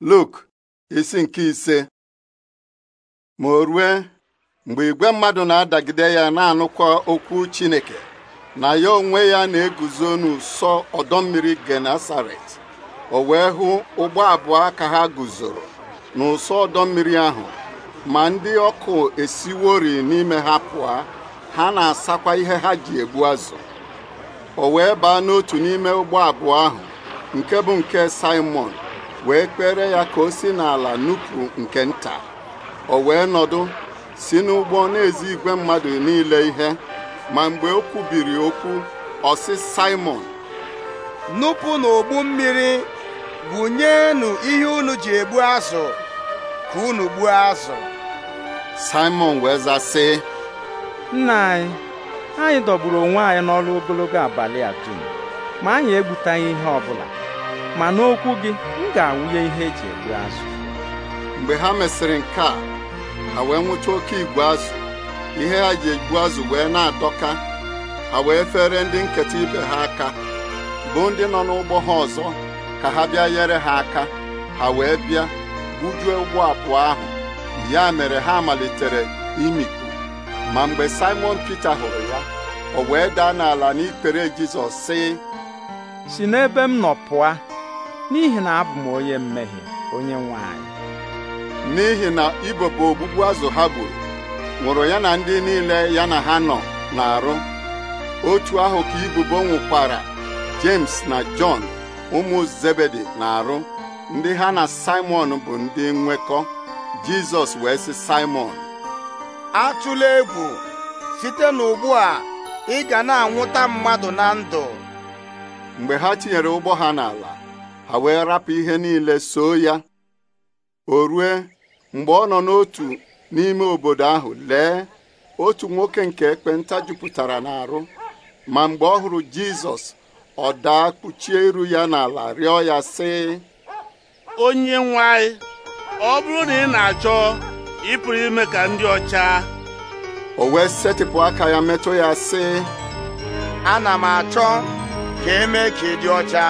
Luk isi nke ise ma o rue mgbe igwe mmadụ na-adagide ya na-anụkwa okwu Chineke na ya onwe ya na-eguzo n'ụsọ ọdọ mmiri Genasaret o wee hụ ụgbọ abụọ ka ha guzoro n'ụsọ ọdọ mmiri ahụ ma ndị ọkụ esiwori n'ime ha pụọ ha na-asakwa ihe ha ji egbu azụ o wee baa n'otu n'ime ụgbọ abụọ ahụ nke bụ nke Simon wee kpere ya ka o si n'ala nupụ nke nta o wee nọdụ si n'ụgbọ na-ezi igwe mmadụ niile ihe ma mgbe o kwubiri okwu ọ sị Simon nupụ n'ogbu mmiri nyeenụ ihe unu ji egbu azụ ka unu gbuo azụ Simon wee zaa sị nna anyị anyị dọgburu onwe anyị n'ọrụ ogologo abalị a dum ma anyị egbutaghị ihe bụla. ma n'okwu gị m ga-awụnye ihe eji egbu azụ mgbe ha mesịrị nke a ha wee nwụcha oke igwe azụ ihe ha ji egbu azụ wee na-adọka ha wee fere ndị nketa ibe ha aka bụ ndị nọ n'ụgbọ ha ọzọ ka ha bịa nyere ha aka ha wee bịa gbujue ụgbọ abụọ ahụ ya mere ha malitere imikpu ma mgbe Simon Peter hụrụ ya o wee daa n'ala n'ikpere Jizọs sị si n'ebe m nọ pụa n'ihi na abụ m onye mmehie onye nwanyị. n'ihi na ibopụ ogbugbu azụ ha gburu nwụrụ ya na ndị niile ya na ha nọ na-arụ otu ahụ ka ibubo nwụkwara James na John ụmụ Zebedi na-arụ ndị ha na Simon bụ ndị nwekọ Jizọs wee sị Simon atụla egwu site n'ugbu a ị ga na-anwụta mmadụ na ndụ mgbe ha tinyere ụgbọ ha n'ala ha wee rapụ ihe niile soo ya o rue mgbe ọ nọ n'otu n'ime obodo ahụ lee otu nwoke nke ekpenta jupụtara n'arụ ma mgbe ọ hụrụ Jizọs ọ daa kpuchie iru ya n'ala rịọ ya sị onye nwe ọ bụrụ na ị na-achọ ịpụrụ ime ka ndị ọcha o wee setịpụ aka ya metụ ya sị ana m achọ ka e ka ị dị ọcha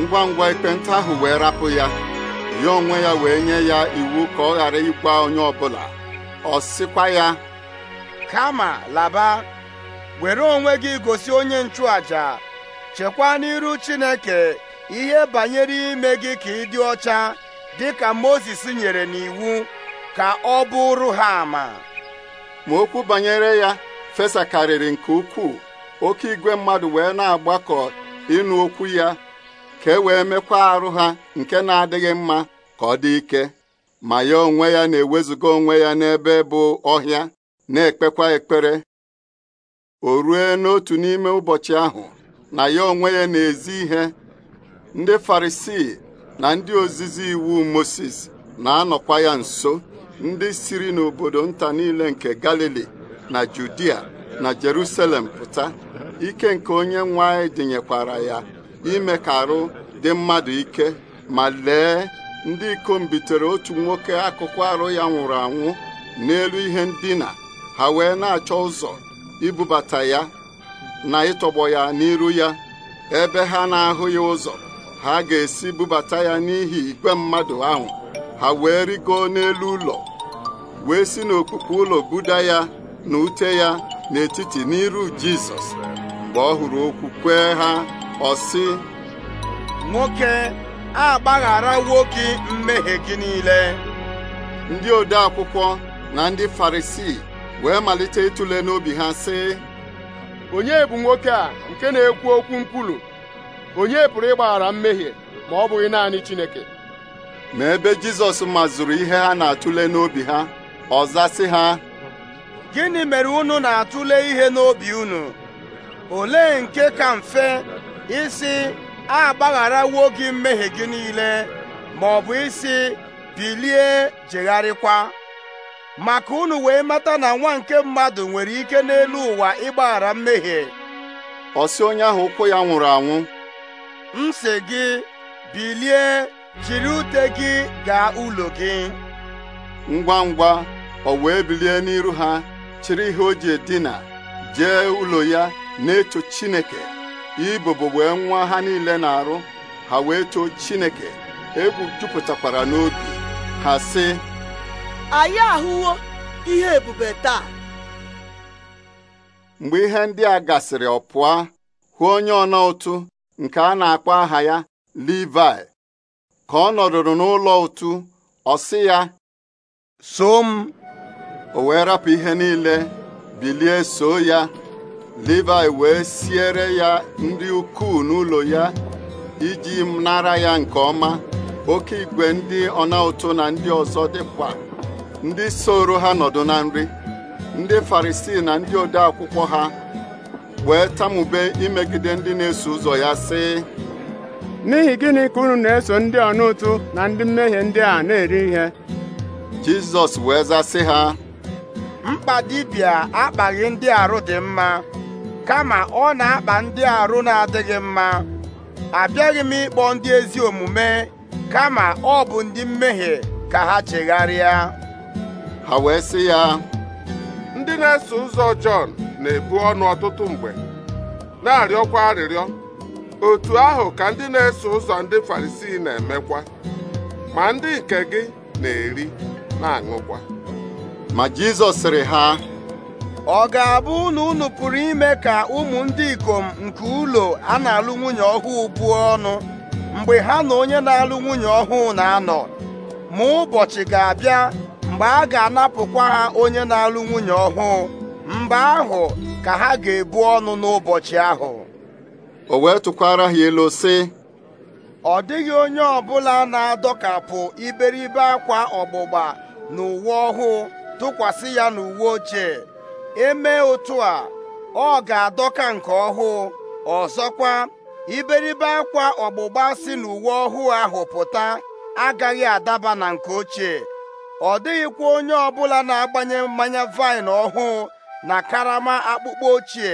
ngwa ngwa ekpenta ahụ wee rapụ ya ya onwe ya wee nye ya iwu ka ọ ghara ịgwa onye ọbụla ọ sịkwa ya kama laba were onwe gị gosi onye nchụàjà chekwa n'iru Chineke ihe banyere ime gị ka ị dị ọcha dị ka Mozis nyere n'iwu ka ọ bụrụ ha ama ma okwu banyere ya fesakarịrị nke ukwuu oke igwe mmadụ wee na-agbakọ ịnụ okwu ya ka e wee mekwa arụ ha nke na-adịghị mma ka ọ dị ike ma ya onwe ya na-ewezuga onwe ya n'ebe bụ ọhịa na-ekpekwa ekpere o rue n'otu n'ime ụbọchị ahụ na ya onwe ya na-ezi ihe ndị farisii na ndị ozizi iwu Moses na-anọkwa ya nso ndị siri n'obodo nta niile nke Galili na Judia na Jerusalem pụta ike nke onye nwanyị dịnyekwara ya ime ka arụ dị mmadụ ike ma lee ndị ikom bitere otu nwoke akụkụ arụ ya nwụrụ anwụ n'elu ihe ndina ha wee na-achọ ụzọ ibubata ya na ịtọgbọ ya n'iru ya ebe ha na-ahụ ya ụzọ ha ga-esi bubata ya n'ihi igwe mmadụ ahụ ha wee rigo n'elu ụlọ wee si n'okpukpe ụlọ buda ya na ute ya n'etiti n'iru Jizọs mgbe ọ hụrụ okwu kwee ha ọ sị nwoke agbagharawo nwoke mmehie gị niile ndị ode akwụkwọ na ndị farisii wee malite ịtụle n'obi ha sị onye bụ nwoke a nke na-ekwu okwu nkwulu onye pụrụ ịgbaghara mmehie ma ọ bụghị naanị Chineke ma ebe Jizọs mazuru ihe ha na-atụle n'obi ha ọ zasị ha gịnị mere unu na-atụle ihe n'obi unu olee nke ka mfe isi a agbagharawo gị mmehie gị niile ma ọ bụ isi bilie jegharịkwa maka unu wee mata na nwa nke mmadụ nwere ike n'elu ụwa ịgbaghara mmehie ọ onye ahụ ụkwụ ya nwụrụ anwụ m si gị bilie jiri ute gị gaa ụlọ gị ngwa ngwa ọ wee bilie n'iru ha chịrị ihe o ji edina jee ụlọ ya na-eto Chineke ibubo wee nwa ha niile na-arụ ha wee choo Chineke egwu jupụtakwara n'obi ha sị anyị ahụwo ihe ebube taa mgbe ihe ndị a gasịrị ọ pụọ hụ onye ọna ụtụ nke a na-akpọ aha ya Livai ka ọ nọdụrụ n'ụlọ ụtụ ọ sị ya so m o wee rapụ ihe niile bilie so ya Livayị wee siere ya ndị ukwuu n'ụlọ ya iji nara ya nke ọma oke igwe ndị ọna ụtụ na ndị ọzọ dịkwa ndị soro ha nọdụ na nri ndị Farisii na ndị ode akwụkwọ ha wee tamube imegide ndị na-eso ụzọ ya sị n'ihi gịnị ka unu na-eso ndị ọna ụtụ na ndị mmehie ndị a na-eri ihe Jizọs wee zasị ha mkpa dibịa akpaghị ndị arụ dị mma kama ọ na-akpa ndị arụ na-adịghị mma abịaghị m ịkpọ ndị ezi omume kama ọ bụ ndị mmehie ka ha chegharịa ha wee sị ya ndị na-eso ụzọ Jọn na-ebu ọnụ ọtụtụ mgbe na-arịọkwa arịrịọ otu ahụ ka ndị na-eso ụzọ ndị Farisii na-emekwa ma ndị nke gị na-eri na-aṅụkwa ma Jizọs sịrị ha ọ ga-abụ na unu pụrụ ime ka ụmụ ndị ikom nke ụlọ a na-alụ nwunye ọhụụ buo ọnụ mgbe ha na onye na-alụ nwunye ọhụụ na-anọ ma ụbọchị ga-abịa mgbe a ga-anapụkwa ha onye na-alụ nwunye ọhụụ mgbe ahụ ka ha ga-ebu ọnụ n'ụbọchị ahụ o wee tụkwara ha elu sị ọ dịghị onye ọbụla na-adọkapụ iberibe akwa ọgbụgba na uwe ọhụụ tụkwasị ya n'uwe ochie Eme otu a ọ ga-adọka nke ọhụụ ọzọkwa iberibe akwa ọgbụgba si n'uwe ọhụụ ahụ pụta agaghị adaba na nke ochie ọ dịghịkwa onye ọbụla na-agbanye mmanya vaịn ọhụụ na karama akpụkpọ ochie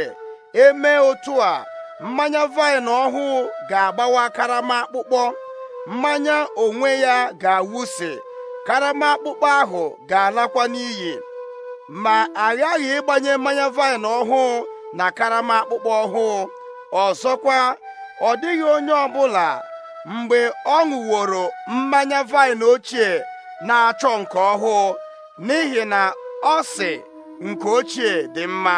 Eme otu a mmanya vaịn ọhụụ ga-agbawa karama akpụkpọ mmanya onwe ya ga-awụsị karama akpụkpọ ahụ ga-alakwa n'iyi ma aghaghị ịgbanye mmanya vaịn ọhụụ na karama akpụkpọ ọhụụ ọzọkwa ọ dịghị onye ọbụla mgbe ọ ṅụworo mmanya vaịn ochie na-achọ nke ọhụụ n'ihi na ọ sị nke ochie dị mma